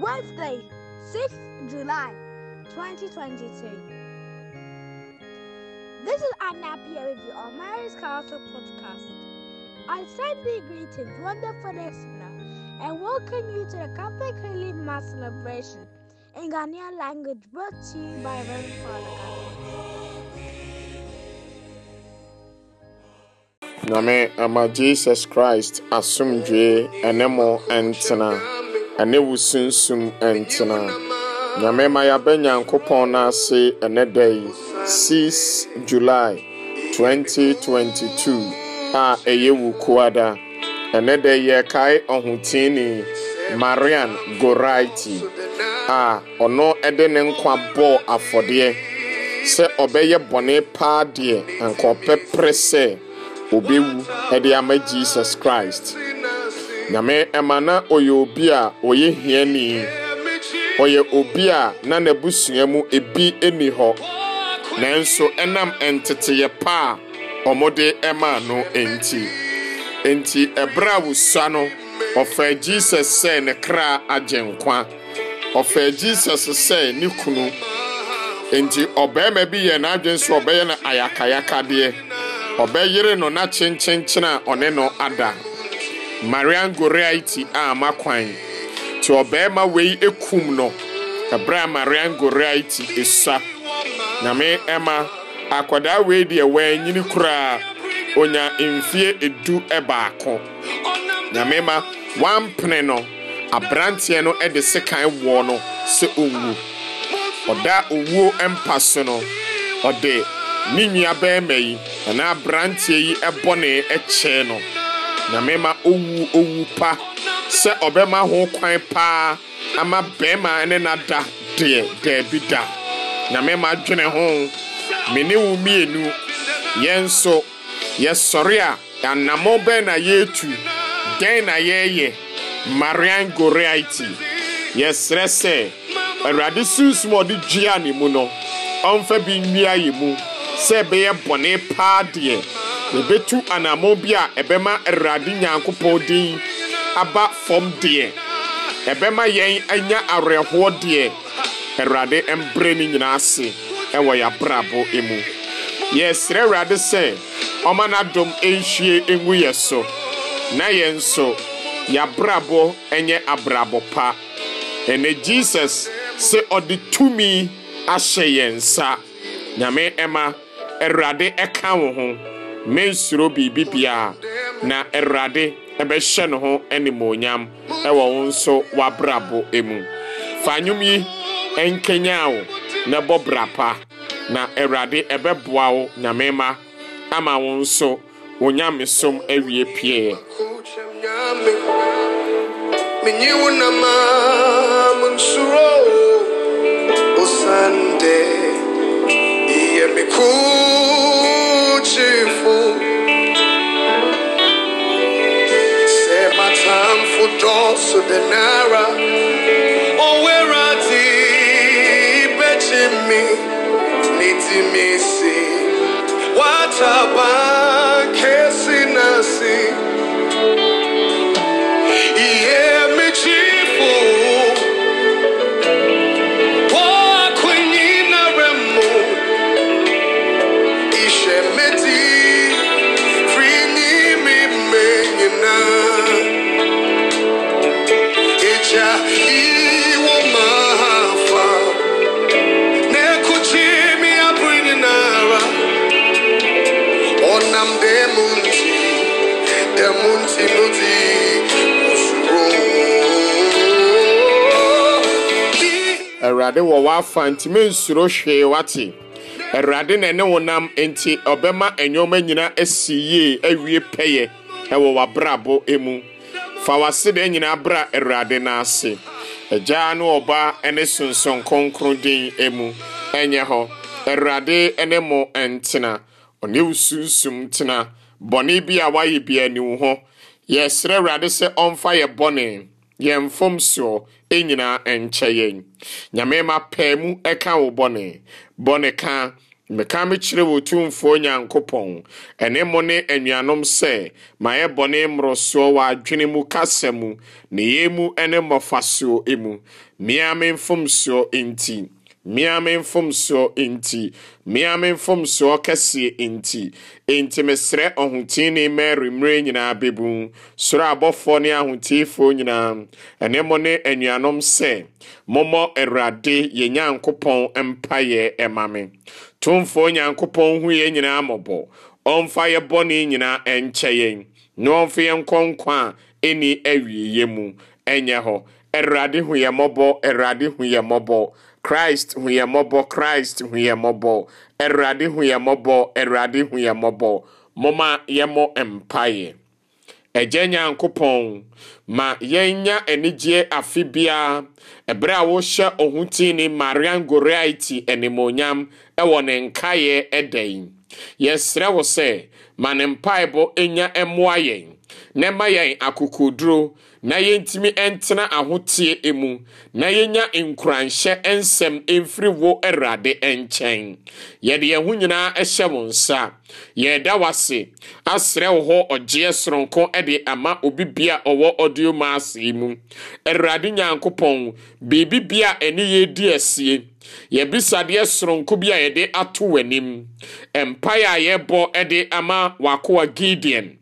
Wednesday, 6th July 2022. This is Anna with Review on Mary's Castle podcast. I send thee greetings, wonderful listener, and welcome you to the Catholic Relief Mass celebration in Ghanaian language brought to you by Reverend Father. Nyame ama Jesus Christ asomdwe Enemo, and ntena. ɛne wo sunsum ɛntena nyame ma yɛabɛ nyankopɔn no ase ɛnɛ da yi 6 july 2022 a ɛyɛ wo kuada ɛnɛ da yɛkae ɔhotini marian goraiti a ɔno ɛde ne nkwa bɔɔ afɔdeɛ sɛ ɔbɛyɛ bɔne paa deɛ anka ɔpɛprɛ sɛ obɛwu ɛde ama jesus christ nyame ɛma na ɔyɛ obi a ɔyɛ hiani ɔyɛ obi a na n'abusua mu ebi ni hɔ nanso ɛnam nteteyɛ paa a wɔde ɛmaa no nti nti ɛberɛ a no ɔfaa jesus sɛ ne kra nkwa ɔfaa jesus sɛ ne kunu nti ɔbarima bi yɛ n'adwene nso ɔbɛyɛ no ayakayakadeɛ ɔbɛyere no na kyenkyenkyen a ɔne no ada marian goriaiti a makwan nti ɔbarima wei ekum no ɛbrɛ a marian goriaiti esua nyame ɛma akwadaa wei deɛ wɔanyini koraa onya mfie edu ɛbaako nyame ma wampene no aberanteɛ no ɛde sekan wɔ no sɛ owu ɔda owuo mpa so no ɔde ne nua bɛrima yi ɛna aberanteɛ yi ɛbɔ ne ɛkyɛɛ no. nyame ma owu owu pa sɛ ɔbɛma ho kwan paa ama bɛrima ne nada deɛ daabi da nyame ma dwene ho me ne wo mmienu yɛn nso yɛsɔre a anammɔ bɛn na yɛretu dɛn na yɛreyɛ marian goriaiti yɛsrɛ sɛ awurade sunsum a ɔde dua ne mu no ɔmfa bi nnua yɛ mu sɛ ɛbɛyɛ bɔne paa deɛ yɛbɛtu anammɔn bi a ɛbɛma awurade nyankopɔn din aba fam deɛ ɛbɛma yɛn anya awerɛhoɔ deɛ awurade mbrɛ ne nyinaa ase ɛwɔ yɛabrabɔ mu yɛsrɛ awurade sɛ ɔma n'adom nhwie ngu yɛ so na yɛn nso yɛabrabɔ nyɛ abrabɔ pa ɛnɛ jesus sɛ ɔde tumi ahyɛ yɛn nsa nyame ɛma awurade ɛka wo ho mensuro nsoro biara na awurade ɛbɛhyɛ ne ho animuonyam ɛwɔ wo nso w'abrabɔ mu fa nnwom yi ɛnkenya wo na ɛbɔ bra pa na awurade ɛbɛboa wo nyamema ama wo nso wo nyamesom Sunday dosu denara owera oh, ti ibechi mi n'iti mi si wata baa. awurade wɔ w'afa nti mensuro hwee wate awurade na ɛne wo nam nti ɔbɛma nneɛma nyinaa asi yie awie pɛyɛ ɛwɔ w'abrabɔ mu fa w'asedan nyinaa bra awurade n'ase agyaa ne ɔba ne sonson kronkron din mu ɛnyɛ hɔ awurade ne mo ntena ɔne wo sunsum tena bɔne bi a wayɛ bi ani wo ho yɛsrɛ awurade sɛ ɔmfa yɛ bɔne yɛn fam soɔ nyinaa nkyɛ yɛn nyame ma pɛɛ mu ka wo bɔne bɔne ka meka mekyerɛ wɔ tumfoɔ nyankopɔn ɛne mo ne anuanom sɛ mayɛ bɔne mmorosoɔ wɔ adwene mu kasa mu ne yɛ mu ne mmɔfasoɔ mu mmea me mfomsoɔ nti meame mfomsoɔ nti meame mfomsoɔ kɛseɛ nti enti mesrɛ ɔhotini mary mmerɛ nyinaa bɛbu soro abɔfoɔ ne ahotiifoɔ nyinaa ɛne mo ne anuanom sɛ mommɔ awurade yɛn nyankopɔn mpayɛ ɛma me tomfoɔ nyankopɔn hu yɛn nyinaa mmɔbɔ ɔmfa yɛ bɔne nyinaa ɛnkyɛ yɛn na ɔmfa yɛn nkɔ nkwa a ɛni awieeɛ mu ɛnyɛ hɔ awurade hu yɛ mmɔbɔ awurade hu yɛ mmɔbɔ kraịst hụ ya mmọbọ kraịst hụ ya mmọbọ awurade hụ ya mmọbọ awurade hụ ya mmọbọ moma yɛmmɔ mpaeɛ agya ma yɛnya anigyeɛ afe biara ɛberɛ a wohyɛ ɔhotini marian goriaiti animonyam ɛwɔ ne nkaeɛ ɛda yi yɛsrɛ wo sɛ ma ne mpaebɔ ɛnya ɛmmoa na ɛma yɛn akokoduro na yɛntumi ntena ahoteɛ mu na yɛnya nkuranhyɛ nsɛm mfiri wo awurade nkyɛn yɛde yɛn ho nyinaa hyɛ wo nsa yɛda wase asrɛ wo hɔ ɔgyeɛ soronko de ama obi bia ɔwɔ ɔdeo maase yi mu awurade nyankopɔn biribi bia ɛne yɛdi asie yɛbisadeɛ soronko bi a yɛde ato w'anim mpaeɛ a yɛbɔ de ama w'akoa gideon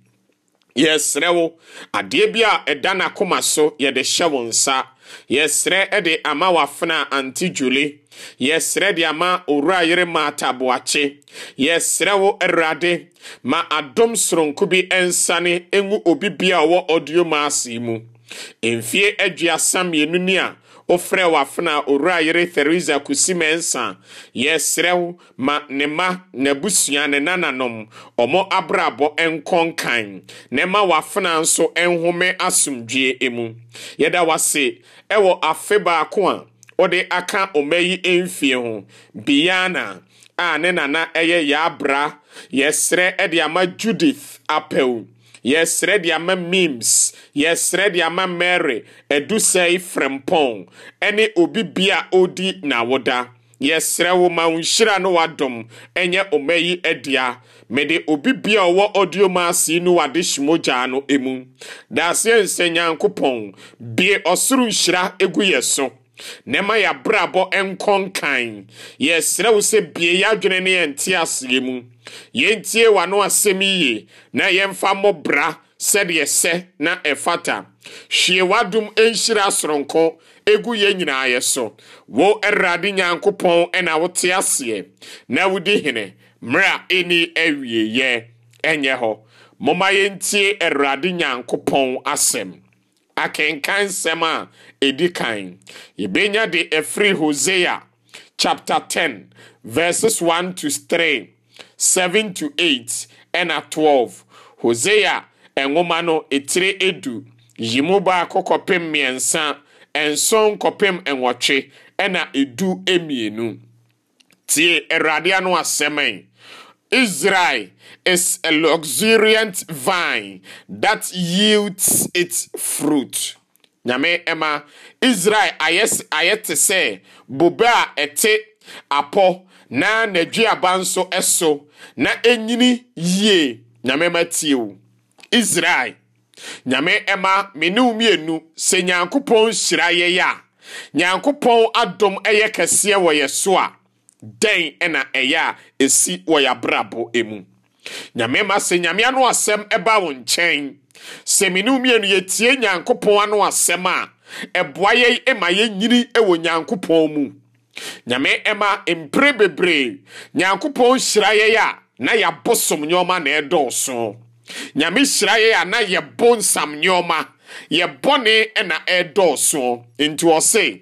yɛsrɛ wo adeɛ bi a ɛda n'akoma so yɛde hyɛ wo nsa yɛsrɛ ɛde ama wafena anti juli yɛsrɛ de ama owura yere maata boakye yɛsrɛ wo awurade ma adom soronko bi ɛnsane ɛngu obi bia ɔwɔ ɔdio maase mu mfie aduasa mmienu ni a wofrɛ w'afena owura yere theresa kusimensa yɛsrɛ wo ma ne ma n'abusua ne nananom ɔmo abrabɔ nkɔ nkan na ɛma w'afena nso nhome asomdwie emu yɛda wase ɛwɔ afe baako a wɔde aka ɔma yi mfie ho biana a ne nana ɛyɛ yɛabra yɛsrɛ ɛde ama judith apɛw yɛsrɛ de ama mims yɛsrɛ de ama mary adusɛe frɛmpɔn ɛne obi bia a ɔdi n'awoda yɛsrɛ wo ma wo nhyira no wadom ɛnyɛ ɔma yi adua mede obi bia a ɔwɔ audio maasi no wade hyemogyaa no emu daaseɛ nsɛ nyankopɔn bie ɔsoro nhyira egu yɛ so na ɛma yɛabrabɔ nkɔ nkan yɛsrɛ wo sɛ bie adwene ne yɛnte aseɛ mu yɛntie w'ano asɛm yie na yɛmfa mmɔ bra sɛdeɛ sɛ na ɛfata hwie w'adom nhyira soronko ɛgu yɛn nyinaa yɛ so wo awurade nyankopɔn ɛna wote aseɛ na wodi hene mmerɛ a ɛni awieyɛ ɛnyɛ hɔ momma yɛntie awurade nyankopɔn asɛm akenkan nsɛm a edi kan yɛbɛnya de ɛfiri hosea chapter 10 verses 1 to 3 7 to 8 ɛna 12 hosea ɛnwoma no etire edu yimu baako kɔpem mmiɛnsa nson kɔpem nwɔtwe ɛna edu mmienu tie awurade ano asɛm yi. Israel is a luxuriant vine that yields its fruit nyame ɛma israel ayɛ ayɛ te sɛ bobe a ɛte apɔ na n'aduaba nso ɛso na enyini yie nyame ɛma tie o israel nyame ɛma menu mmienu sɛ nyankopɔn hyira yɛ yɛ a nyankopɔn adom ɛyɛ kɛseɛ wɔ yɛ so a dɛn ɛna ɛyɛ a esi wɔ yɛ abrabɔ emu nyame ma sɛ nyame ano asɛm ɛba wo nkyɛn sɛ me ne mmienu yɛtie nyankopɔn ano asɛm a ɛboa yɛn ma yɛnyini wɔ nyankopɔn mu nyame ɛma mpere bebree nyankopɔn hyira yɛn a na yɛabosom nneɔma na ɛdɔɔso nyame hyira yɛn a na yɛbɔ nsam nneɔma yɛbɔne na ɛdɔɔso nti ɔse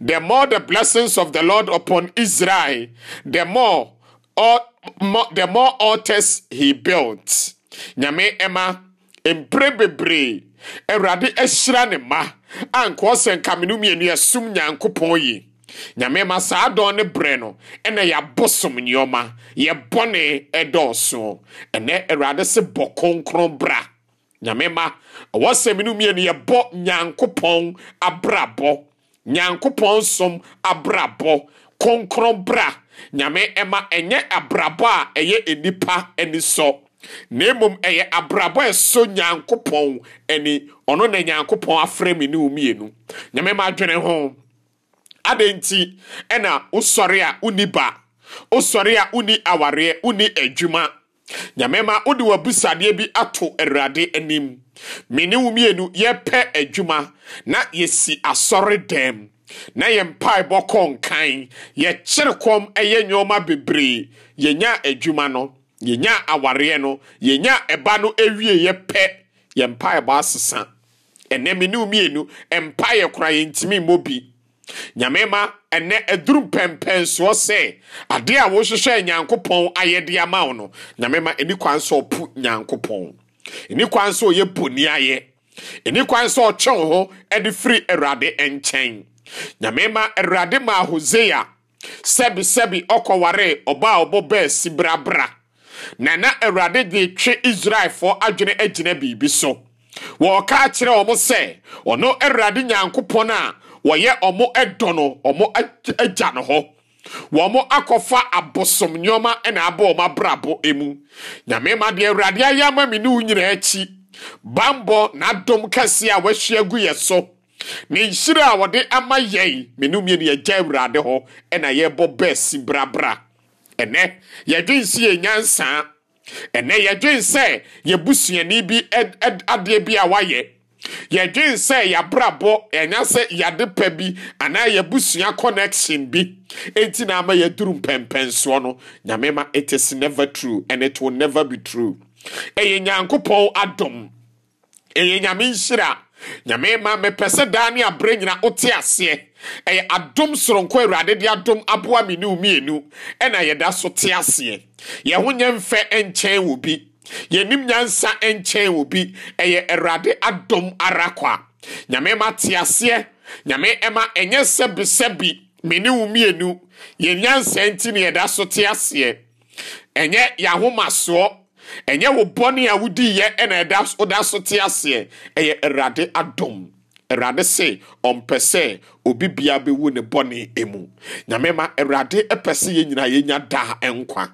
the more the blessings of the lord upon israel the more the more altars he built nyame Emma, mpere bebree awurade ahyira ne ma a nkɔɔ sɛ nkamenu mmienu yɛsom nyankopɔn yi nyame ma saa dɔn ne berɛ no ɛna yɛabɔ som nneɔma yɛbɔne ɛdɔɔso ɛnɛ awurade se bɔ kronkron bra nyame ma ɛwɔ sɛm no mmienu yɛbɔ nyankopɔn abrabɔ nyankopɔn som abrabɔ kronkron bra nyame ɛma ɛnyɛ abrabɔ a ɛyɛ nipa ani sɔ na mmom ɛyɛ abrabɔ a ɛsɔ nyankopɔn ani ɔno na nyankopɔn afrɛ mi ne omienu nyame ma adwene ho adɛn nti ɛna wosɔre a woni ba wosɔre a woni awareɛ woni adwuma nyame ma wode w'abusadeɛ bi ato awurade anim me ne wo mmienu yɛpɛ adwuma na yɛsi asɔre dɛm na yɛ mpaebɔ kɔ nkan yɛkyere kɔm ɛyɛ nneɔma bebree yɛnya adwuma no yɛnya awareɛ no yɛnya ɛba no yɛ pɛ yɛ mpaebɔ asesa ɛnɛ me ne mmienu mpaeɛ kora yɛntumi mmɔ bi nyame ma ɛnɛ aduru mpɛmpɛnsoɔ sɛ adeɛ a wohwehwɛ nyankopɔn ayɛde ama wo no nyame ma ɛni kwan sɛ ɔpo nyankopɔn ɛni kwan sɛ ɔyɛ poni ayɛ ɛni kwan sɛ ɔtwe wo ho de firi awurade nkyɛn nyame ma awurade maa hosea sɛbisɛbi ɔkɔwaree ɔba a ɔbɔ bɛɛ brabra na na awurade de twe israelfoɔ adwene agyina biribi so wɔɔka kyerɛ ɔmo sɛ ɔno awurade nyankopɔn a wɔyɛ ɔmo ɛdɔ no ɔmo agya no hɔ wɔmo akɔfa abosom nneɔma na abɔ ɔmo abrabɔ mu nyame ma deɛ awurade ayɛ ama me ne wo nyinaa akyi bambɔ n'adom kɛseɛ a wahyia gu yɛ so ne nhyire a wɔde ama yɛn menomie ne yɛgya awurade hɔ ɛna yɛbɔ bɛsi brabra ɛnɛ yɛdwen sɛ yɛnyansaa ɛnɛ yɛdwen sɛ yɛbusuani bi adeɛ bi a wayɛ yɛdwen sɛ yɛabrabɔ ɛnya sɛ yɛade pɛ bi anaa yɛbusua connection bi enti na ama yɛduru mpɛmpɛnsoɔ no nyame ma it is never true and it will never be true ɛyɛ nyankopɔn adom ɛyɛ nyame nhyira nyame ma mepɛ sɛ daa ne aberɛ nyina wote aseɛ ɛyɛ adom soronko awurade de adom aboa me ne womienu ɛna yɛda so te aseɛ yɛho nyɛ mfɛ nkyɛn wɔ bi yɛnim nyansa nkyɛn wɔ bi ɛyɛ awurade adom ara kɔ a nyame ma te aseɛ nyame ɛma ɛnyɛ sɛbisɛbi me ne womienu yɛnyansa nti ne yɛda so te aseɛ ɛnyɛ yɛahomasoɔ ɛnyɛ wo bɔne a wodiiɛ ɛna ɛda so te aseɛ ɛyɛ awurade adom awurade se ɔmpɛ sɛ obi bia bɛwu ne bɔne mu nyame ma awurade pɛ sɛ yɛn yɛnya daa nkwa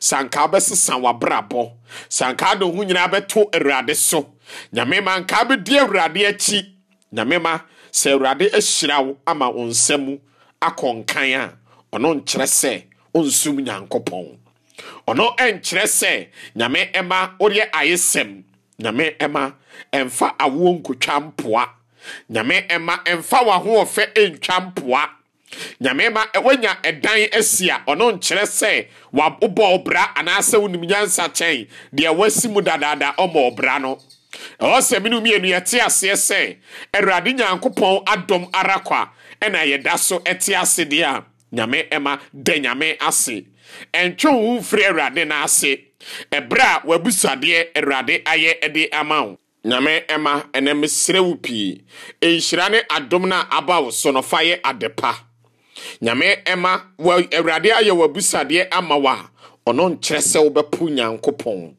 sanka bɛsesa w'abrabɔ sanka de ho nyinaa bɛto awurade so nyame ma nka bɛdi awurade akyi nyame ma sɛ awurade ahyira wo ama wo nsa mu akɔ nkan a ɔno nkyerɛ sɛ ɔnsum nyankopɔn ɔno ɛnkyerɛ sɛ nyame ɛma wodeɛ ayesɛm nyame ɛma ɛmfa awoɔ nkotwa mpoa nyame ɛma ɛmfa w'ahoɔfɛ ɛntwa mpoa nyame ma wanya ɛdan asi a ɔno nkyerɛ sɛ wobɔ ɔbra anaasɛ wonim nyansa kyɛn deɛ wasi mu dadaada ɔma ɔbra no ɛwɔ sɛ menom yɛnu yɛte aseɛ sɛ awurade nyankopɔn adɔm ara kwa ɛna yɛda so ɛte ase deɛ a nyame ɛma dɛ nyame ase ɛntwe wo firi awurade n'ase ɛberɛ a w'abusadeɛ awurade ayɛ de ama wo nyame ɛma ɛnɛ mesrɛ wo pii ɛnhyira ne adom no a aba wo so no fa yɛ ade pa nyame ɛma awurade ayɛ w'abusadeɛ ama wo a ɔno nkyerɛ sɛ wobɛpo nyankopɔn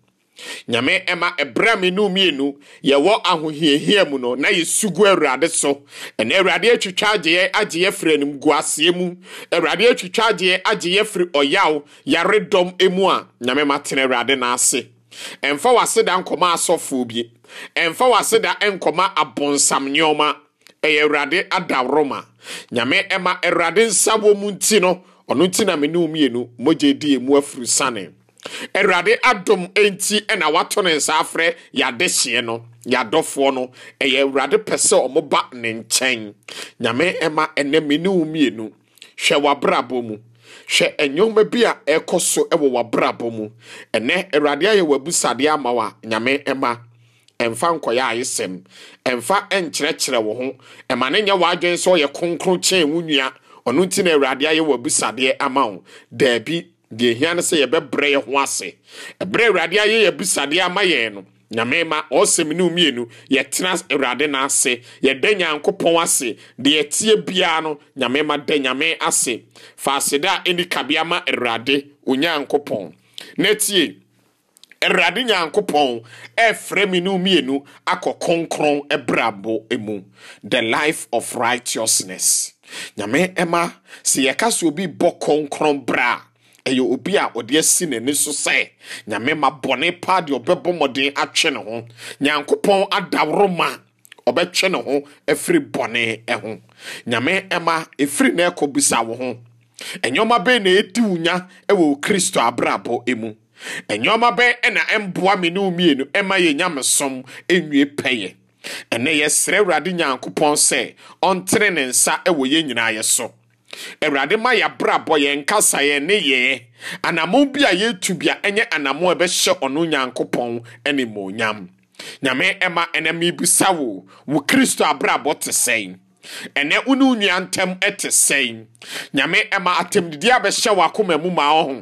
nyame ɛma ɛbrɛ me mmienu yɛwɔ ahohiahia mu no na yɛsugu awurade so ɛna awurade atwitwa agyeɛ agyeɛ firi animguaseɛ mu awurade atwitwa agyeɛ agyeɛ firi ɔyaw yaredɔm mu a nyame tena awurade n'ase ɛmfa w'aseda nkɔma asɔfoɔ bi ɛmfa w'aseda nkɔma abonsam nneɔma ɛyɛ awurade adaworoma nyame ɛma awurade nsa wɔ mu nti no ɔno nti na me mmienu mogye di mu afiri sane awurade adom nti na wato ne nsa afrɛ yɛadehyeɛ no yɛadɔfoɔ no ɛyɛ awurade pɛ sɛ ɔmoba ne nkyɛn nyame ɛma ɛnɛ me ne wo mmienu hwɛ w'abrabɔ mu hwɛ ɛnyɛma bi a ɛkɔ so ɛwɔ w'abrabɔ mu ɛnɛ awurade ayɛ w'abusadeɛ ama wa nyame ɛma ɛmfa nkɔyɛ ayesɛm ɛmfa ɛnkyerɛkyerɛ wo ho ɛma ne nyɛ w'adwene sɛ ɔyɛ kronkron kyɛn wo nua ɔno nti na awurade ayɛ w'abusadeɛ ama wo daabi deɛ ehia no sɛ yɛbɛbrɛ yɛ ho ase ɛbrɛ awurade ayɛ yɛ bisadeɛ ama yɛn no nyame ma ɔsɛm ne mmienu yɛtena awurade no ase yɛda nyankopɔn ase deɛ yɛtie biara no nyame da nyame ase faasede a ɛni kabea ma awurade onyankopɔn na tie awurade nyankopɔn ɛfrɛ me no mmienu akɔ kronkron brabo mu the life of righteousness nyame ɛma sɛ yɛka sɛ obi bɔ kronkron bra ɛyɛ obi a ɔde asi n'ani so sɛ nyame ma bɔne paa deɛ ɔbɛbɔ mmɔden atwe ne ho nyankopɔn adaworo ma ɔbɛtwe ne ho afiri bɔne ho nyame ɛma ɛfiri na ɛkɔ bisa wo ho ɛnyɛma bɛn na ɛdi wo nya ɛwɔ kristo abrabɔ mu ɛnyɛma bɛn na ɛmboa me ne wo mmienu ɛma yɛ nyamesom ɛnwie pɛyɛ ɛnɛ yɛsrɛ awurade nyankopɔn sɛ ɔntere ne nsa ɛwɔ yɛn nyinaa yɛ so Ewurade ma yɛabrabɔ yɛn kasa yɛn ne yɛn anammɔn bi a yɛtu bia ɛnyɛ anamu a ɛbɛhyɛ ɔno nyankopɔn animuonyam nyame ɛma ɛnɛ mebisa wo wo kristo abrabɔ te sɛn ɛnɛ wo ne wo nua ntɛm ɛte sɛn nyame ɛma atɛmdidi abɛhyɛ wɔ akoma mu ma wo ho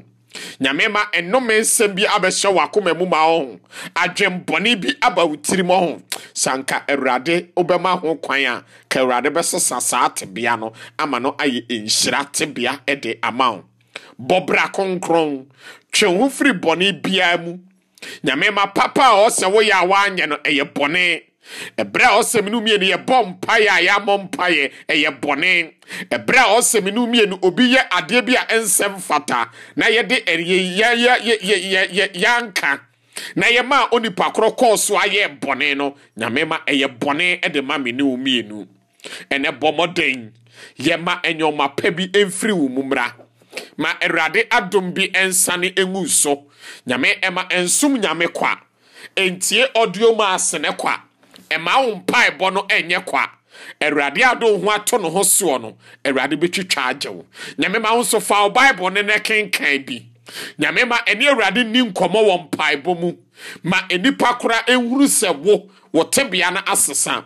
nyame ma ɛnome nsɛm bi abɛhyɛ wɔ akoma mu ma ɔho adwembɔne bi aba wo tirim ɔho sanka awurade wobɛma ho kwan a ka awurade bɛsesa saa tebea no ama no ayɛ nhyira tebea de ama wo bɔbra kronkron twe ho firi bɔne biara mu nyame papa a ɔsɛ woyɛ a woanyɛ no ɛyɛ ɛberɛ a ɔsɛm no mmienu yɛbɔ mpaeɛ a yɛamɔ mpaeɛ ɛyɛ bɔne ɛberɛ a ɔsɛm no mmienu obi yɛ adeɛ bi a ɛnsɛm fata na yɛde yɛanka na yɛma a onipa korɔ kɔɔ so ayɛ bɔne no nyame ma ɛyɛ bɔne de ma me ne mmienu ɛnɛ bɔ mmɔden yɛma ɛnyɔma pɛ bi ɛmfiri wo mu mmra ma ɛwurade adom bi ɛnsane ɛngu so nyame ɛma ɛnsom nyame kwa ɛntie ɔdeɔ mu asene kwa ɛma wo mpaebɔ no ɛnyɛ kwa awurade ado ho ato ne ho soɔ no awurade bɛtwitwa agye wo nyame ma wo nso fa wo bible ne ne kenkan bi nyame ma ɛne awurade ni nkɔmmɔ wɔ mpaebɔ mu ma nnipa kora ɛnhuru sɛ wo wo tebea no asesa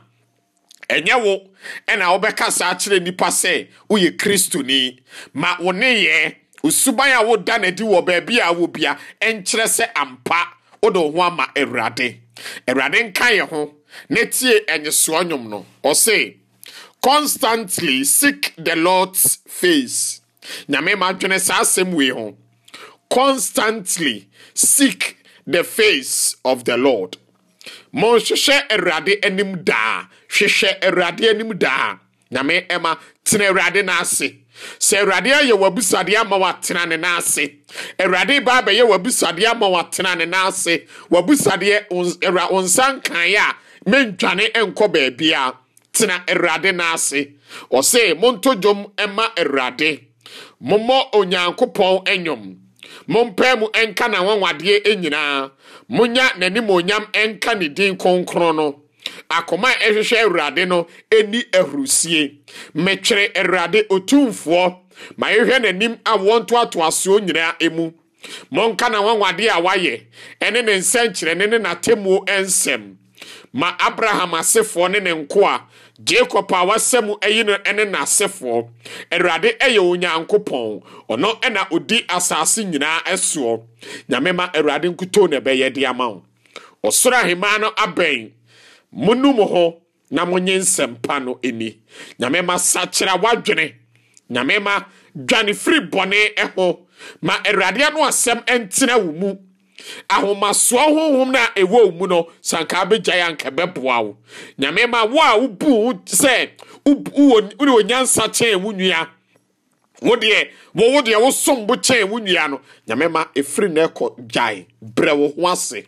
ɛnyɛ wo ɛna wobɛka saa kyerɛ nnipa sɛ woyɛ kristoni ma wo neyɛ osuban a woda n'adi wɔ baabi a wɔ bia ɛnkyerɛ sɛ ampa wode wo ho ama awurade awurade nka yɛ ho na tie ɛnyesoa nnwom no ɔse constantly seek the lord's face nyame ma adwene saa asɛm wei ho constantly seek the face of the lord monhwehwɛ awurade anim daa hwehwɛ awurade anim daa nyame ɛma tena awurade n'ase sɛ awurade ayɛ w'abusuadeɛ ama watena ne n'ase awurade ba abɛyɛ w'abusuadeɛ ama watena ne n'ase w'abusuadeɛ wo nsa nkaeɛ a mentwane nkɔ baabi a tena awurade n'ase ɔse monto dwom ɛma awurade mommɔ onyankopɔn ɛnwom mompae mu ɛnka n'anwanwadeɛ nyinaa monya n'animonyam nka ne din kronkron no Akụma a ɛhwehwɛ awurade no ɛni ahurusie mekyerɛ awurade otumfoɔ ma yɛhwɛ n'anim a wɔn ntoatoasoɔ nyinaa emu mɔnka na wanwade a wayɛ ɛne ne nsɛnkyerɛne ne n'atemmuo nsɛm ma abraham asefoɔ ne ne nkoa jacob a wasɛm ayi no ne n'asefoɔ awurade yɛ onyankopɔn ɔno ɛna odi asase nyinaa ɛsoɔ nyame ma awurade nkutoo na ɛbɛyɛ de ama wo ɔsoro ahemaa no abɛn monu ho na monye nsɛmpa no ani nyame ma sakyera wadwene nyame ma dwane firi bɔne ɛho ma awurade ano asɛm ɛntena wo mu ahomasoɔ honhom no a ɛwɔ wo mu no sankaa bɛgyae anka bɛboa wo nyame ma wo a wobu wo sɛ wode onyansa kyɛn wo nua wo deɛ wo wo deɛ wosom bo kyɛn wo nua no nyame ma ɛfiri na ɛkɔ gyae brɛ wo ho ase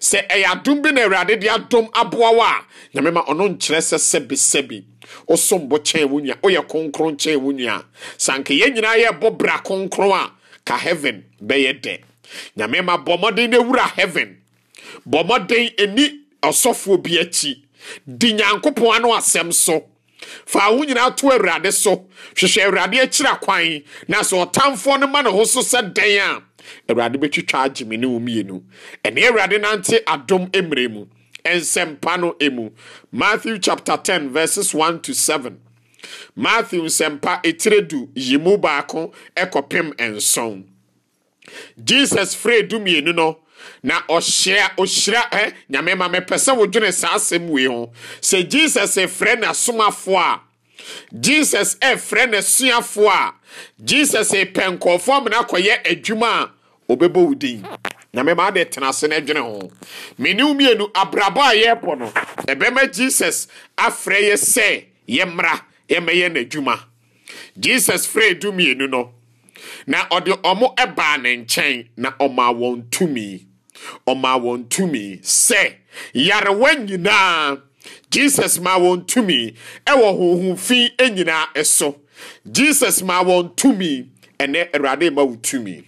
sɛ ɛyɛ adom bi na awurade de adom aboa wo a nyame ma ɔno nkyerɛ sɛ sɛbisɛbi wosombo kyɛn wo nua woyɛ kronkron kyɛn wo nua sanka yɛn nyinaa yɛbɔ bra kronkron a ka heaven bɛyɛ dɛ nyame ma bɔ mmɔden no wura heaven bɔ mmɔden ɛni ɔsɔfoɔ bi akyi di nyankopɔn ano asɛm so fa ho nyinaa to awurade so hwehwɛ awurade akyira kwan na sɛ ɔtamfoɔ no ma ne ho so sɛ dɛn a awurade bɛtwitwa agye me ne wo mmienu ɛne awurade nante adom mmerɛ mu nsɛmpa no emu matthew chapter ten verses one to seven matthew nsɛmpa etire du yi mu baako ɛkɔpem nson jesus fere du no na ɔhyira ɔhyira ɛ nyame ma mepɛ sɛ wodwene saa asɛm wei ho sɛ jesus efrɛ n'asomafoɔ a jesus ɛfrɛ n'asuafoɔ a jesus epɛ nkɔɔfoɔ amena akɔyɛ adwuma a obɛbɔ wo din na mɛma de tena ase no adwene ho mene mmienu abrabɔ a yɛrebɔ eh, no ɛbɛma eh jesus afrɛ yɛ sɛ yɛmmra yɛmmɛyɛ n'adwuma jesus frɛ du mmienu no na ɔde ɔmo ɛbaa ne nkyɛn na ɔmaa wɔn tumi ɔmaa wɔn tumi sɛ yarewa nyinaa jesus ma wɔn tumi ɛwɔ e honhom fi nyinaa ɛso jesus ma wɔn tumi ɛnɛ awurade ma wo tumi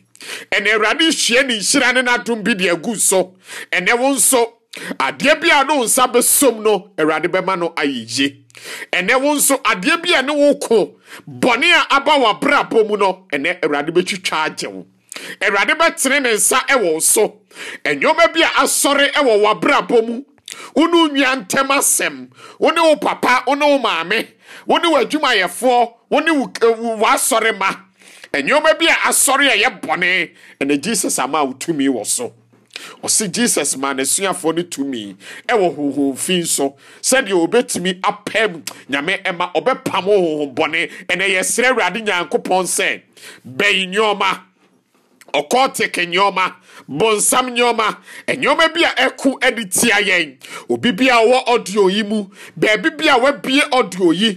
ɛnɛ awurade hyia ne nhyira ne n'adom bi de agu so ɛnɛ wo nso adeɛ bi a no nsa bɛsom no awurade bɛma no ayɛyie ɛnɛ wo nso adeɛ bi a ne wo ko bɔne a aba wɔ abrabɔ mu no ɛnɛ awurade bɛtwitwa agye wo awurade bɛtene ne nsa ɛwɔ so ɛnneɛma bi a asɔre ɛwɔ wɔ abrabɔ mu wone nua ntɛm asɛm wone wo papa wone wo maame wone w'adwumayɛfoɔ wone w'asɔre ma nneɛma bi a asɔre a ɛyɛ ɛna jesus ama a wotumi wɔ so ɔsi jesus maa n'asuafoɔ no tumi ɛwɔ huhun fi nso sɛdeɛ obetumi apɛm nyame ɛma ɔbɛpam huhun bɔne ɛna yɛsrɛ awurade nyankopɔn sɛ bɛyi nneɛma ɔkɔɔ teke nneɛma bonsam nneɔma e nneɔma bi a ɛko de tia yɛn obi bi a wɔ audio yi mu baabi bi a wabie audio yi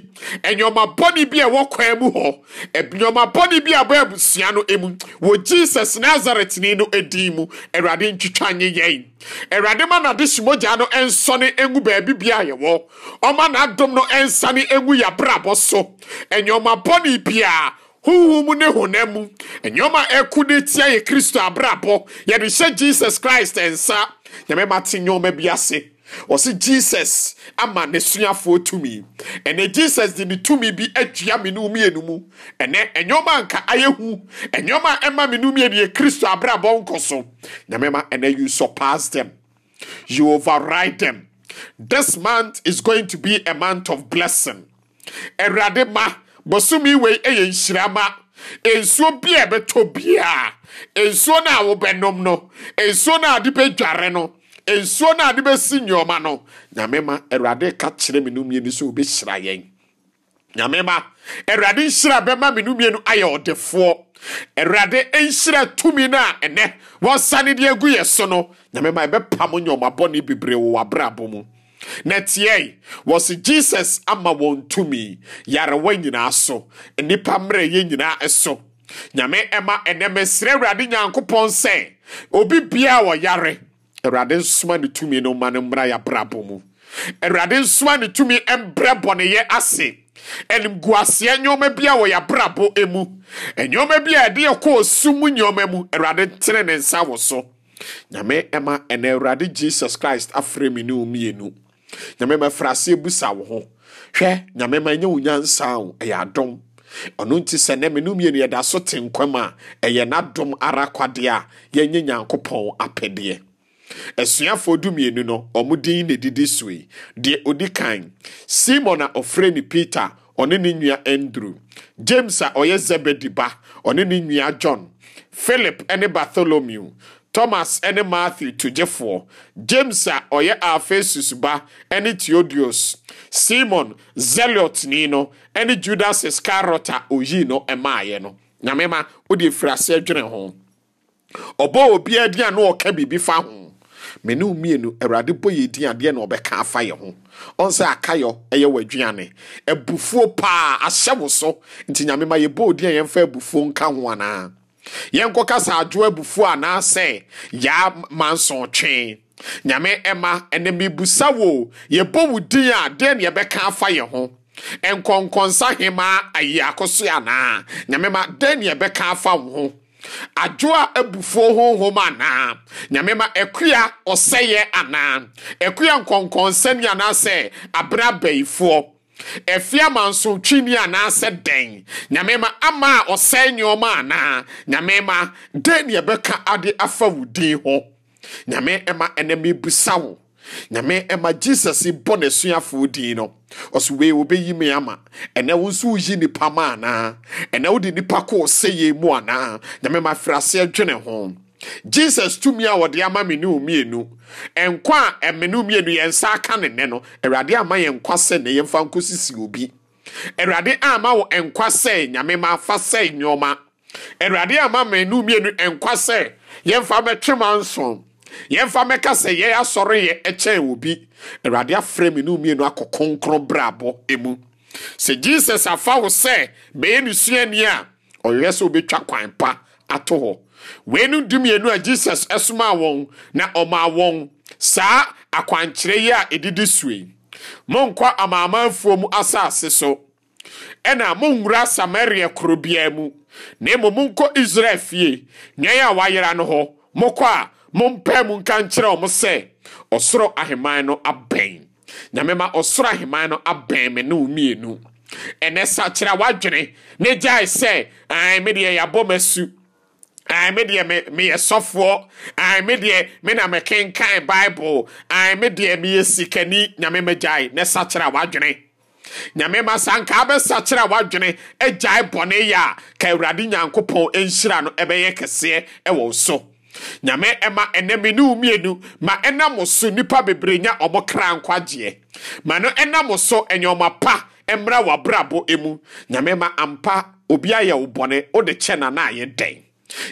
e nneɔma bɔne bi a ɛwɔ kwan mu hɔ e nneɔma bɔne bi a bɔ abusua no mu wɔ jesus nazaretni no din mu awurade ntwitwa nye yɛn awurade ma n'ade hyimogya no nsɔne ngu baabi bia yɛwɔ ɔma n'adom no nsane ngu yɛabrabɔ so nneɔma bi a. honhom ne honam mu nneɛma ɛko de tia yɛ kristo abrabɔ yɛde hyɛ jesus christ nsa nyame ma te nneɛma bi ase ɔsi jesus ama ne suafoɔ tumi ɛnɛ jesus de ne tumi bi adua menu mmienu mu ɛnɛ ɛnyɔma nka ayɛ hu ɛnyɔma ɛma menu mmienu yɛ kristo abrabɔ nkɔ so nyamema ɛnɛ you surpass them you override them this month is going to be a month of blessing ɛwurade ma. Bosumi wei yɛ nhyirama nsuo bi a ɛbɛtɔ biara nsuo no a wobɛnom no nsuo no a de bɛdware no nsuo no a de bɛsi nneɛma no nyame ma awurade ka kyerɛ me no mmienu sɛ wobɛhyira yɛn nyame ma awurade nhyira bɛma me no mmienu ayɛ ɔdefoɔ awurade nhyira tumi no a ɛnɛ wɔsane de agu yɛ so no nyame ma ɛbɛpam nneɛma bebree wɔ w'abrabɔ mu na tiɛe wɔ se jesus ama wɔn tumi yarewa nyinaa so nnipa mmerɛyɛ nyinaa so nyame ɛma ɛnɛ mesrɛ awurade nyankopɔn sɛ obi biaa wɔyare awurade nsoma ne tumi no ma no mmra yɛabrabɔ mu awurade nsoma ne tumi mbrɛ bɔneyɛ ase animguaseɛ nneɔma bi a wɔyɛ abrabɔ mu nneɔma bi a ɛde yɛkɔ ɔsu mu nneɔma mu awurade ntene ne nsa wɔ so nyame ɛma ɛnɛ awurade jesus christ afrɛ me ne omienu nyame mɛfra ase busa wo ho hwɛ nyame ma nyɛ wo nyansa o ɛyɛ adom ɔno nti sɛ nɛ menu mmienu yɛda so te nkwam a ɛyɛ n'adom ara kwadeɛ a yɛnye nyankopɔn apɛdeɛ asuafoɔ du mmienu no ɔmo din na didi so yi deɛ odi kan simon a ɔfrɛ ne peter ɔne ne nua andrew james a ɔyɛ zebedi ba ɔne ne nua john philip ne bartholomew thomas ne matthew togyefoɔ james a ɔyɛ afesus ba ne theodos simon zelotni no ne judas iscariot a oyii no ɛmaeɛ no nyamema wode firi ase dwene ho ɔbɔ obiara din a na ɔka biribi fa ho mene mmienu awurade bɔ yɛ din adeɛ na ɔbɛka afa yɛ ho ɔn akayɔ ɛyɛ w'aduane abufuo paa ahyɛ wo so nti nyamema yɛbɔ odin a yɛmfa abufuo nka ho anaa yɛnkɔka sa adwo abufuo anaasɛ yaa mansɔntwee nyame ɛma ɛnɛ mebusa wo yɛbɔ wo din a deɛ ne yɛbɛka afa yɛ ho nkɔnkɔnsa hemaa ayi akoso anaa nyame ma deɛ na yɛbɛka afa wo ho adwo a abufuo honhom anaa nyame ma akua ɔsɛyɛ anaa akua nkɔnkɔnsa ni anaasɛ abrɛ Efi ama nso twini anaasɛ dɛn nyame ma ama a ɔsɛn nneɔma anaa nyame ma dɛn ne ɛbɛka ade afa wo din ho nyame ɛma ɛnɛ mebusa wo nyame ɛma jesus bɔ n'asuafoɔ din no ɔso wei wobɛyi me ama ɛnɛ wo nso yi nipa ma anaa ɛnɛ wode nipa kɔɔ yie mu anaa nyame ma afiri aseɛ dwene ho jesus tumi a wɔde ama me ne mmienu nkwa a ɛme eh, ne mmienu yɛn nsa aka ne nɛ no awurade ama yɛn nkwa sɛ ne yɛmfa nkɔ sisi obi awurade ama wɔ nkwa sɛ nyame ma afa sɛ nneɛma awurade ama me ne mmienu nkwa sɛ yɛmfa mɛtwe ma nson yɛmfa mɛka sɛ yɛn asɔre yɛ ɛkyɛn obi awurade afrɛ me ne mmienu akɔ kronkron brabɔ emu sɛ jesus afa wo sɛ bɛyɛ ne suani a ɔyɛ sɛ obɛtwa kwan pa ato hɔ wee nu weinom mmienu a jesus ɛsomaa wɔn na ɔmaa wɔn saa akwankyerɛ yi a ɛdidi sue monkɔ amaamanfoɔ mu asase so ɛna monwura samaria kuro biara mu na mmom monkɔ israel fie nneɛ a wayera no hɔ mokɔ a mompae mu nka nkyerɛ ɔmo sɛ ɔsoro ahemman no abɛn nyame ɔsoro ahemman no abɛn me ne wo mmienu ɛnɛ sakyera wadwene ne gyae sɛ ɛn me deɛ yɛabɔ m'asu me deɛ meyɛ sɔfoɔ me deɛ me na mekenkan bible me deɛ meyɛ sikani nyame magyae ne sakyerɛ a w'adwene nyame ma saa nka wobɛsakyerɛ a w'adwene agyae bɔne yɛ a ka awurade nyankopɔn ɛnhyira no ɛbɛyɛ e kɛseɛ ɛwɔ e so nyame ɛma ɛnɛ me ne womienu ma ɛnam so nnipa bebree nya ɔmo kra nkwagyeɛ ma no ɛnam so ɛnyɛɔma pa mmra e w'abrabɔ mu nyame ma ampa obi ayɛ wo bɔne wode kyɛ na na ayɛ dɛn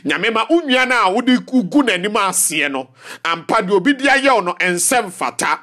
nyame ma wo nua no a wode gu n'anim aseɛ no ampa deɛ obi de ayɛ wo no ɛnsɛ mfata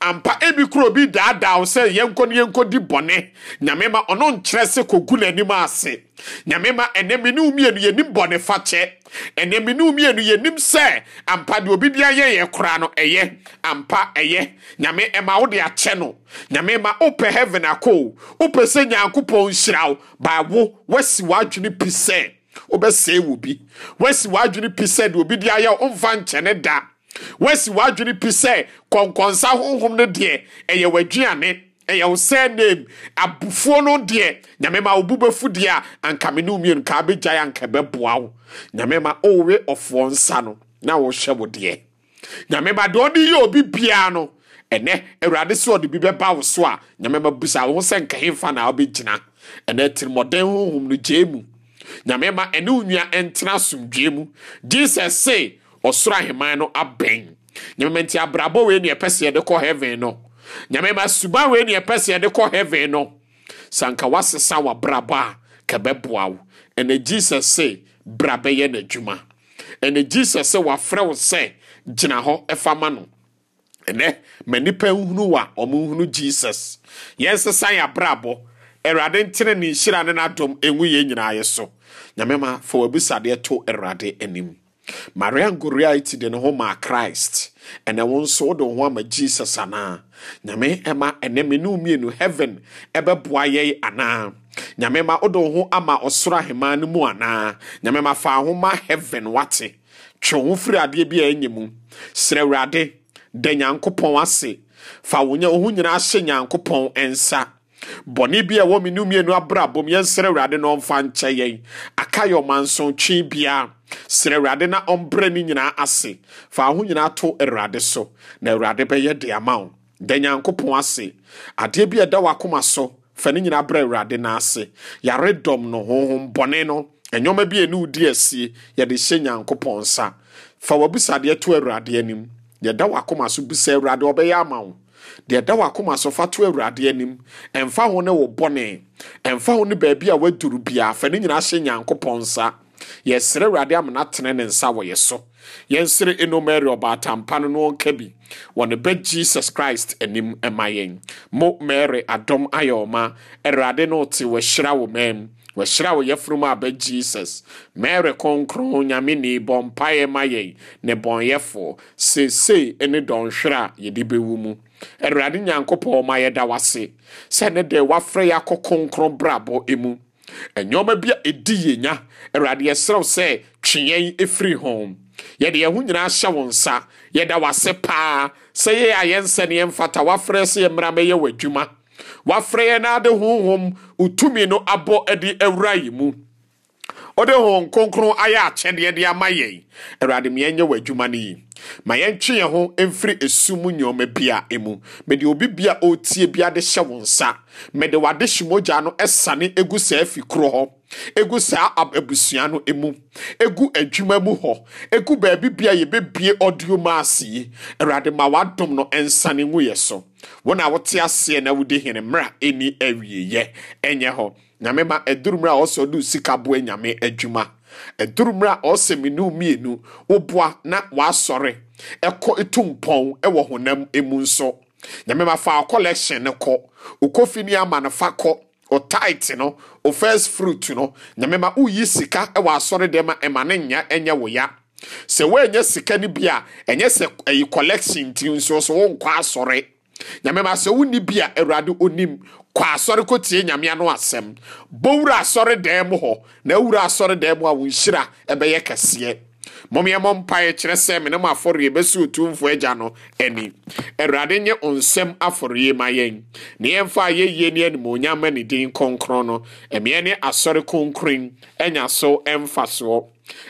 ampa ebi kuro obi daadaa wo sɛ yɛnkɔ ne yɛnkɔ di bɔne nyame ma ɔno nkyerɛ sɛ kɔgu n'anim ase nyame ma ɛnɛ me ne wo mmienu yɛnim bɔne fakyɛ ɛnɛ mmienu yɛnim sɛ ampa deɛ obi de ayɛ yɛ koraa no ɛyɛ ampa ɛyɛ nyame ɛma wo de akyɛ no nyame ma wopɛ heaven akɔ wopɛ sɛ nyankopɔn nhyira wo baawo woasi w'adwene pi sɛ wobɛsɛe wɔ bi woasi w'adwene pi sɛ deɛ obi de ayɛ womfa nkyɛne da woasi w'adwene pi sɛ kɔnkɔnsa honhom no deɛ ɛyɛ w'aduane ɛyɛ wo sɛ nam abufuo no deɛ nyame ma wobu bɛfu deɛ a anka me ne womienu kaa bɛgyae anka bɛboa wo nyame ma wowe ɔfoɔ nsa no na wohyɛ wo deɛ nyame ma deɛ ɔde yɛ obi biara no ɛnɛ awurade sɛ ɔde bi bɛba wo so a nyame ma busa wo ho sɛ nkahemfa na wobɛgyina ɛnɛ tirimɔden honhom no gyee mu nyame ma ɛne wo nua ɛntena asomdwee mu jesus se ɔsoro aheman no abɛn nyame ma nti abrabɔ wei ne ɛpɛ sɛ yɛde kɔ heaven no nyame ma suban wei ne ɛpɛ sɛ yɛde kɔ heaven no sɛ anka w'abrabɔ a kɛbɛboa wo ɛnɛ jesus se bra bɛyɛ n'adwuma ɛnɛ jesus sɛ wafrɛ wo sɛ gyina hɔ ɛfa ma no ɛnɛ ma nnipa nhunu wa ɔmo nhunu jesus yɛnsesa yɛ abrabɔ awurade ntene ne nhyira ne n'adom ɛngu yɛn nyinaa yɛ so nyame ma fa w'abisadeɛ to awurade anim maria ngoriaiti de ne ho maa christ ɛnɛ wo nso wode wo ho ama jesus anaa nyame ɛma ɛnɛ me ne mmienu heaven ɛbɛboa yɛi anaa nyame ma wode wo ho ama ɔsoro ahemmaa no mu anaa nyame ma fa ho ma heaven wate twe ho firi adeɛ bi a ɛnyɛ mu serɛ awurade da nyankopɔn ase fa wo ho nyinaa hyɛ nyankopɔn nsa. bɔne bi a ɛwɔ me no mmienu abrabom yɛnsrɛ awurade na ɔmfa nkyɛ yɛn aka yɛ ɔmansotwe biara Sere awurade na ɔmbrɛ ne nyinaa ase fa ho nyinaa to awurade so na awurade bɛyɛ de ama wo da nyankopɔn ase adeɛ bi a ɛda w'akoma so fa ne nyinaa brɛ awurade no ase yaredɔm no honhom bɔne no ɛnwɔma bi a ɛne wodi asie yɛde hyɛ nyankopɔn nsa fa w'abisadeɛ to awurade anim yɛda w'akoma so bisa awurade ɔbɛyɛ ama wo deɛ da wakoma so fa to awurade anim ɛmfa ho ne wo bɔne ɛmfa ho ne baabi a waduru biara fa ne nyinaa hyɛ nyankopɔn nsa yɛsrɛ awurade amena tene ne nsa wɔ yɛ so yɛnsere enomari ɔbaatampa no no nka bi wɔ ne bɛ jesus christ anim ɛma yɛn mo mary adɔm ayɛ ɔma awurade no te wɔahyira wɔ mam wɔahyira wɔ yɛfunum aba jesus mary kronkron nyame ne bɔ mpaeɛ ma yɛn ne bɔnyɛfoɔ seesei ne dɔnhwere a yɛde bɛwu mu awurade nyankopɔn ma yɛda wase sɛ ne deɛ wafrɛ yɛ akɔ kronkron brabɔ mu ɛnyɔma bi a ɛdi yɛnya awurade yɛserɛw sɛ twe yɛn ɛfiri ho yɛde yɛn ho nyinaa hyɛ wo nsa yɛda wase paa sɛ yɛyɛ a yɛnsɛ ne yɛmfata wafrɛ sɛ yɛmmra mɛyɛ w'adwuma wafrɛ yɛn na ade honhom wotumi no abɔ adi awura yi mu ɔde hon kronkron ayɛ akyɛdeɛ de ama yɛn awurade ma yɛnyɛ wɔ adwuma no yi ma yɛntwe yɛn ho mfiri esu mu nneɛma bia emu mede obi bia ɔretie bia de hyɛ wɔn nsa mede wade hyimogya no ɛsane egu saa fi koro hɔ egu saa abusua no emu egu adwuma mu hɔ egu baabi bia yɛbɛbie ɔdioma ase yi awurade ma wadom no nsane ngu yɛ so wɔn a wɔte aseɛ na wɔdi hene mmerɛ ɛni awieyɛ ɛnyɛ hɔ nyame ma ɛduru mmerɛ a ɔsɔ do sika boɛ nyame adwuma ɛduru mmerɛ a ɔsɛ mmienu mmienu wɔboa na wɔasɔre ɛkɔ etu mpɔn ɛwɔ honam emu nso nyame ma fa fa kɔ o a ɛma ne nya ɛnyɛ ya sɛ sika no bi a nso nyame ma sɛ wonni bi a awurade onim kɔ asɔre kɔtie nyame ano asɛm bɔwura asɔre dan mu hɔ na awura asɔre dan mu a wo nhyira ɛbɛyɛ kɛseɛ mɔmmeɛmɔ mpaeɛ kyerɛ sɛ me ne mo afɔreɛ bɛsi otumfoɔ agya no ani awurade nye nsɛm afɔreɛ ma yɛn ne yɛmfa a yɛyie ne animonyam ne din kɔnkrɔn no ɛmeɛ ne asɔre kronkron anya so ɛmfa soɔ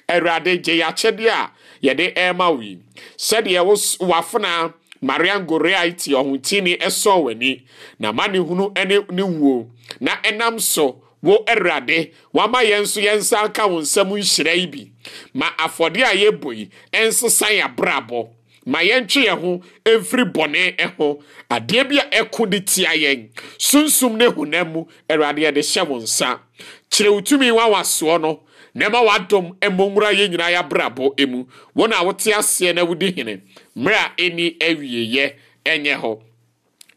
awurade gye yɛakyɛdeɛ a yɛde ɛrema wo yi sɛdeɛ wafona marian goriaiti ɔhotini ɛsɔn w'ani na mani ne hunu ne ne wuo na ɛnam so wo ɛwurade wama yɛn nso yɛn nsa aka wo nsam nhyira yi bi ma afɔdeɛ a yɛbɔ yi ɛnsesa yɛ abrabɔ ma yɛntwe yɛn ho mfiri bɔne ɛho adeɛ bi a ɛko de tia yɛn sunsum ne honam mu awurade yɛde hyɛ wɔn nsa kyerɛ wo tumi wa soɔ no na ɛma dɔm mmɔ nwura yɛn nyinaa yɛabrabɔ emu wɔn a wote aseɛ na wodi hene mmerɛ a ɛni yɛ ɛnyɛ hɔ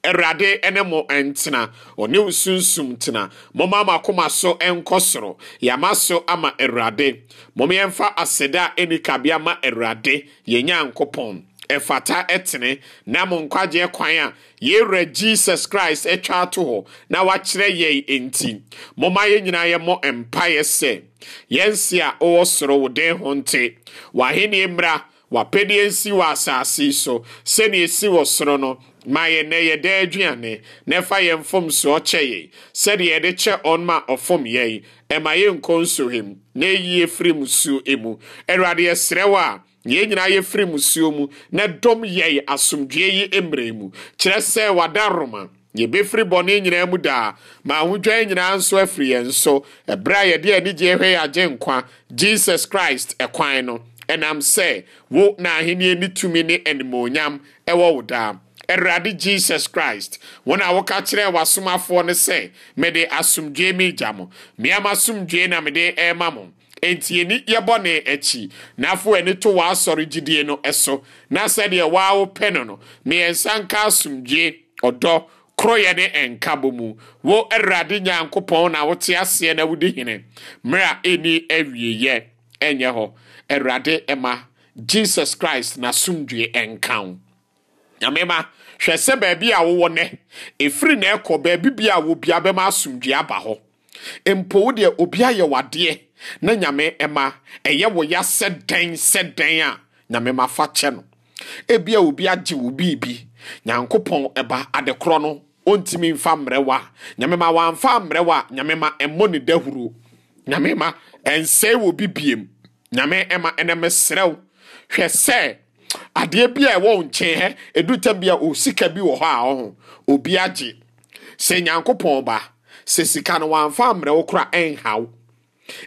ɛwurade ɛne mo ntena ɔne wo sunsum tena moma ama akoma so ɛnkɔ soro yama so ama awurade moma yɛmfa aseda ɛni kabea ma awurade yɛn nyankopɔn ɛfata ɛtene na mo nkwagyeɛ kwan a yɛwura jesus christ atwa ato hɔ na wakyerɛ yɛn enti momma yɛn nyinaa yɛmmɔ mpaeɛ sɛ yɛnse a ɔwɔ soro wo den ho nte w'ahenni mmra wapɛdeɛ nsi wɔ asase so sɛnea esi wɔ soro no ma yɛn nɛ yɛ dɛ aduane na ɛfa yɛn mfomsoɔ kyɛ yɛn sɛdeɛ yɛde kyɛ ɔn ma ɔfom yɛn ɛma yɛn nkɔ nsohwem na ɛyi efiri mu suo emu awurade yɛsrɛ wɔ a yɛn nyinaa yɛfiri musuo mu na dɔm yɛn asomdwoe yi mmerɛ mu kyerɛ sɛ wada roma yɛbɛfiri bɔne nyinaa mu daa ma ahodwan nyinaa nso afiri yɛn so ɛberɛ a yɛde anigyeɛ hwɛ yɛ nkwa jesus christ ɛkwan no ɛnam sɛ wo na ahenni ne tumi ne animuonyam ɛwɔ wo daa awurade jesus christ wɔn a wɔka kyerɛ w'asomafoɔ no sɛ mede asomdwoe mi gya mo mmea ma na mede ɛrema mo enti yɛni yɛbɔ ne akyi na afo ani to w'asɔre gyidie no so na sɛdeɛ waa wopɛ no no mmiɛnsa nka asomdwie ɔdɔ koroyɛ ne nkabɔ mu wo awurade nyankopɔn na wote aseɛ na wodi hene mmerɛ a ɛni awieyɛ ɛnyɛ hɔ awurade ɛma jesus christ n'asomdwie nka wo nyamema hwɛ sɛ baabi a wowɔ nɛ ɛfiri na ɛkɔ baabi bi a wobia bɛma asomdwie aba hɔ mpo wo deɛ obi ayɛ wadeɛ na nyame ɛma ɛyɛ wo ya sɛ dɛn sɛ dɛn a nyame ma fa kyɛ no ebia obi agye wo biribi nyankopɔn ɛba adekorɔ no ɔntumi mfa mmerɛwa nyame ma wamfa mmerɛwa nyame ma ɛmmɔ ne dahuro nyame ma ɛnsɛe wɔ bi biem nyame ɛma ɛnɛ meserɛw hwɛ sɛ adeɛ bi a ɛwɔ nkyɛn hɛ ɛdu tam bi a ɔsika bi wɔ hɔ a ɔho obi agye sɛ nyankopɔn ba sɛ sika no wamfa mmerɛ wo kora ɛnhaw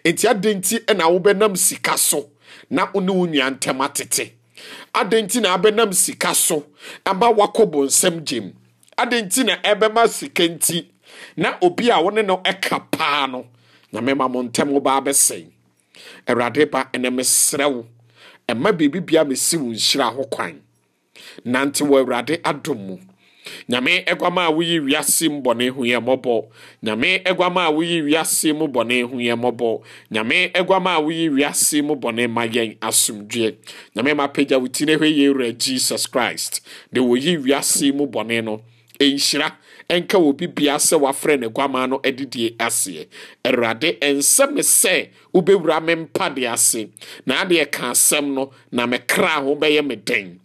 enti adɛn nti ɛna wobɛnam sika so na wo ne wo nua ntɛm atete adɛn nti na abɛnam sika so ama wakɔ bonsɛm gyem adɛn nti na ɛbɛma sika nti na obi a wo ne no ɛka paa no nyamema mo ntɛm wo baa bɛsɛn awurade ba ɛnɛ mesrɛ wo ɛma biribibia mesi wo nhyira ho kwan nante wɔ awurade adom mu nyame ɛguama a woyi wiase mu bɔne ho yɛ mmɔbɔ nyame ɛguama a woyi wiase mu bɔne ho yɛ mmɔbɔ nyame ɛguama a woyi wiase mu bɔne ma yɛn asomdwoe nyame ma pagya wo ti ne hɔ yɛ wura jesus christ de woyi wiase mu bɔne no ɛnhyira ɛnka wɔ bibia sɛ wafrɛ ne guama no adidie aseɛ awurade ɛnsɛ me sɛ wobɛwura me mpa de ase na adeɛ ka asɛm no na mekra ho bɛyɛ me den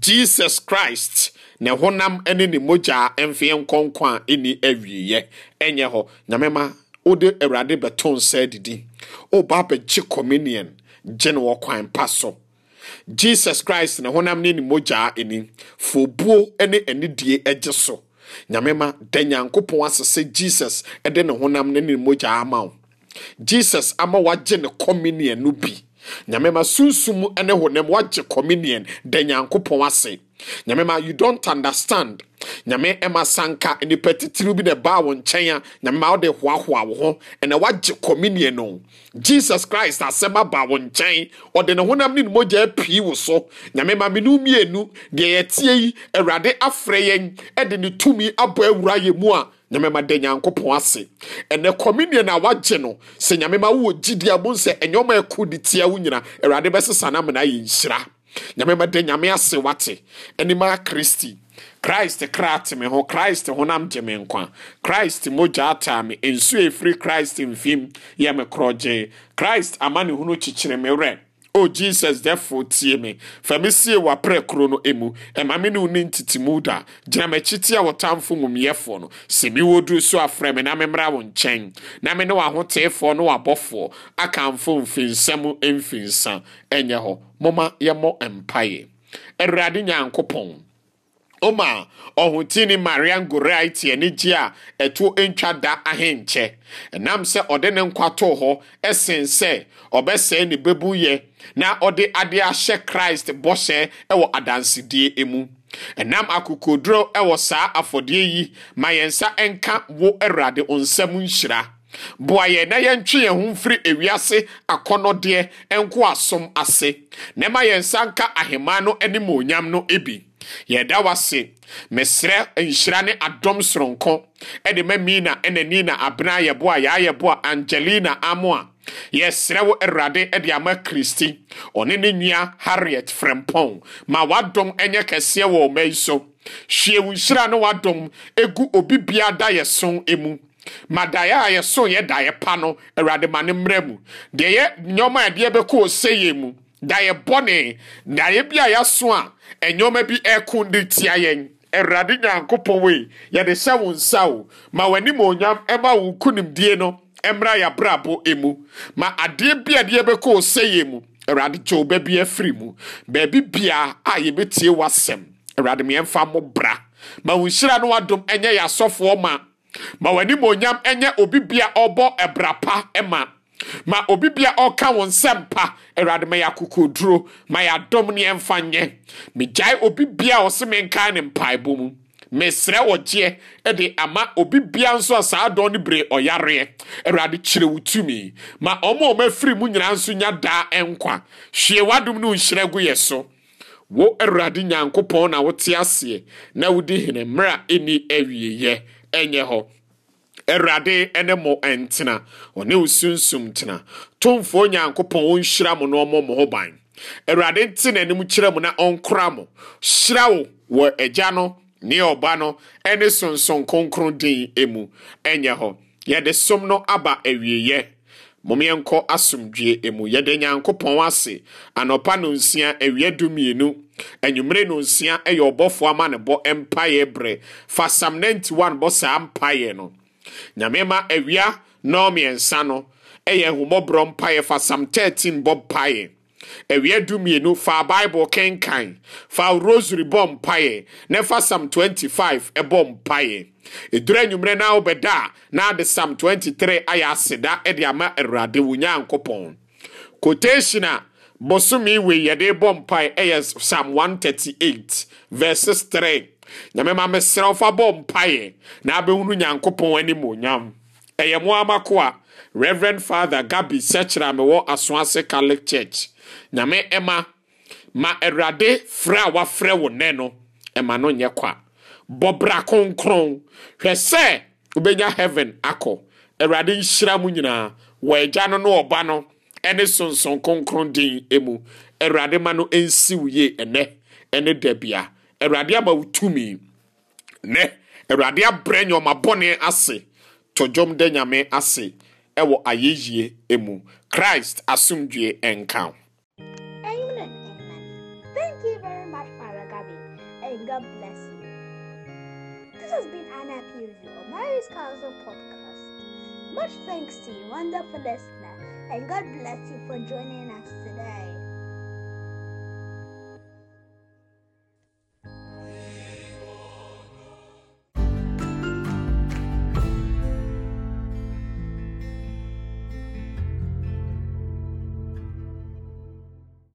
jesus christ na honam ne ne mogya mfeɛ nkɔnkɔ a ɛni awieɛ ɛnyɛ hɔ nyamema wode awurade bɛto nsa didi woba bɛgye communion gye no wɔ kwan pa so jesus christ ne honam ne ne mogya ani fobuo ne anidie gye so nyamema da nyankopɔn asese jesus de ne honam ne ne mogya ama wo jesus ama wagye ne communion no bi nyamema sunsum ne honam wagye communion da nyankopɔn ase nyame ma you don't understand nyame ɛma sanka nipa titiri bi na ɛbaa wɔn nkyɛn a nyame ma ɔde hoahoa wo ho ɛna wagye communion no jesus christ asɛm aba wɔn nkyɛn ɔde ne honam ne ne mogya apii wo so nyame ma menu mmienu deɛ yɛtie yi awurade afrɛ yɛn ɛde ne tumi abɔ awura yɛ mu a nyame ma da nyankopɔn ase ɛnɛ communion na wagye no sɛ nyame ma wowɔ gyidi a mu sɛ ɛnyɛ ɔma ɛko de tia wo nyina awurade bɛsesa no amena yɛ nhyira nyame bɛde nyame ase wate animaa kristi christ kra te me ho christ honam gye me nkwa christ mogya ataa me nsuo efiri christ mfim yɛ me korɔgye christ amanehunu kyekyere me werɛ o oh, jesus therefore tie me fa me sie w'aprɛkorɔ no emu ɛma e me ne wo ne ntitimu da gyina m'akyi tia wɔtamfo mumuyɛfoɔ no sɛ mi wɔ so afrɛ me na memmra wo nkyɛn na me ne w'ahoteefoɔ ne w'abɔfoɔ akamfo mfinsɛm mfinsa ɛnyɛ hɔ moma yɛmmɔ mpaeɛ awurade nyankopɔn oma ɔhotini marian goriaiti ani gye a ɛto ntwa da ahenkyɛ ɛnam sɛ ɔde ne nkwa too hɔ ɛsen sɛ ɔbɛsɛe ne bɛbuyɛ na ɔde adeɛ ahyɛ christ bɔhyɛ ɛwɔ nam akụkụ ɛnam akokoduro ɛwɔ saa afɔdeɛ yi ma yɛn nsa ɛnka wo awurade nsam nhyira boa yɛn na ya yɛntwe yɛn ho mfiri ewiase akɔnɔdeɛ nko asom ase na ɛma yɛn nsa nka ahemmaa no animonyam no bi yɛda wase mesrɛ nhyira ne adɔm soronko ɛde ma mina ɛna nina abena ayɛboa yɛayɛboa angelina Amoa, a yɛsrɛ wo awurade ɛde ama kristi ɔne ne nua harriet frɛmpɔn ma wadɔm ɛnyɛ kɛseɛ wɔ ɔma yi so hwie wo nhyira ne wadɔm ɛgu obi biara da yɛ so mu ma daeɛ a yɛso yɛ daeɛ pa no awurade ma ne mmerɛ mu deɛ yɛ nneɔma a ɛdeɛ bɛkɔ ɔsɛyɛ mu da yɛ bɔne na yɛ bi a yɛaso a ɛnyɔma bi ɛko de tia yɛn awurade nyankopɔn wei yɛde hyɛ wo nsa o ma w'anim onyam ɛma e wo konimdie no ɛmmra e yɛabrabɔ emu ma adeɛ e bi a deɛ bɛkɔ ɔsɛyɛ mu awurade gye wo baabi afiri mu baabi biara a yɛbɛtie w'asɛm awurade meɛmfa mo bra ma wo nhyira no wadom ɛnyɛ yɛ ma ma w'anim onyam ɛnyɛ obi bia ɔbɔ ɛbra pa ɛma ma obi bia ɔka wo nsɛm pa awurade ma yɛ duro, ma yɛ adɔm ne ɛmfa nyɛ megyae obi bia ɔse menkae ne mpaebɔ mu mesrɛ wɔgyeɛ de ama obi bia nso a saa dɔn no bere ɔyareɛ awurade kyerɛ wo tumi ma ɔma ɔma afiri mu nyinaa nso nya daa ɛnkwa hwie w'adom no nhyira gu yɛ so wo awurade nyankopɔn na wote aseɛ na wodi hene mmerɛ a ɛni awieyɛ ɛnyɛ hɔ awurade ne mo ntena ɔne wo sunsum tena tomfoɔ nyankopɔn ɔnhyira mo na ɔmmɔ mo ho ban awurade nte n'anim kyerɛ mo na ɔnkora mo hyira wo wɔ agya no ne ɔba no ne sonson kronkron din mu ɛnyɛ hɔ yɛde som no aba awieyɛ momeɛnkɔ asomdwe mu yɛde nyankopɔn ase anɔpa no nsia awia du mmienu anwummere no nsia yɛ ɔbɔfoɔ ama ne bɔ mpaeɛ berɛ fa sam 91 bɔ saa mpaeɛ no nyame ma awia nnɔmmiɛnsa no ɛyɛ ahomɔborɔ mpaeɛ fa sam 13 bɔ mpaeɛ du dumienu fa baibul kenkan fa rosary bɔ mpaeɛ na fa sam 25 ɛbɔ mpaeɛ ɛdura anwummerɛ na wobɛda a na ade sam 23 ayɛ aseda ɛde ama awurade wo nyankopɔn quotation a bosome wei yɛde bɔ mpaeɛ ɛyɛ sam 138 verses 3 nyame ma mesrɛ wo fa bɔ mpaeɛ na abɛhunu nyankopɔn animonyam ɛyɛ mo amako a reverend father gabi sɛkyerɛ a mewɔ aso ase catholic church nyame ɛma ma awurade frɛ a wafrɛ wo nɛ no ɛma no nyɛ kwa bɔbra kronkron hwɛ sɛ wobɛnya heaven akɔ awurade nhyira mu nyinaa wɔ agya no ne ɔba no ne sonson kronkron din mu awurade ma no nsi wo yie ɛnɛ ne da awurade ama wo tumi nɛ awurade abrɛ nyɔma bɔne ase to dwom dɛ nyame ase ɛwɔ ayɛyie emu christ asomdue ɛnka Amen. Thank you very much, Father Gabi, and God bless you. This has been an appeal of Mary's Council podcast. Much thanks to you, wonderful listener, and God bless you for joining us today.